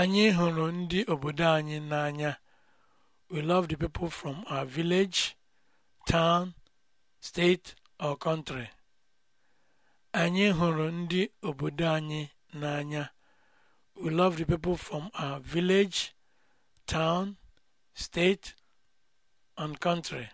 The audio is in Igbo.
Anyị hụrụ ndị obodo anyị n'anya. We love the people from our village, town, state or country. Anyị hụrụ ndị obodo anyị n'anya. We love the people from our village, town, state and country.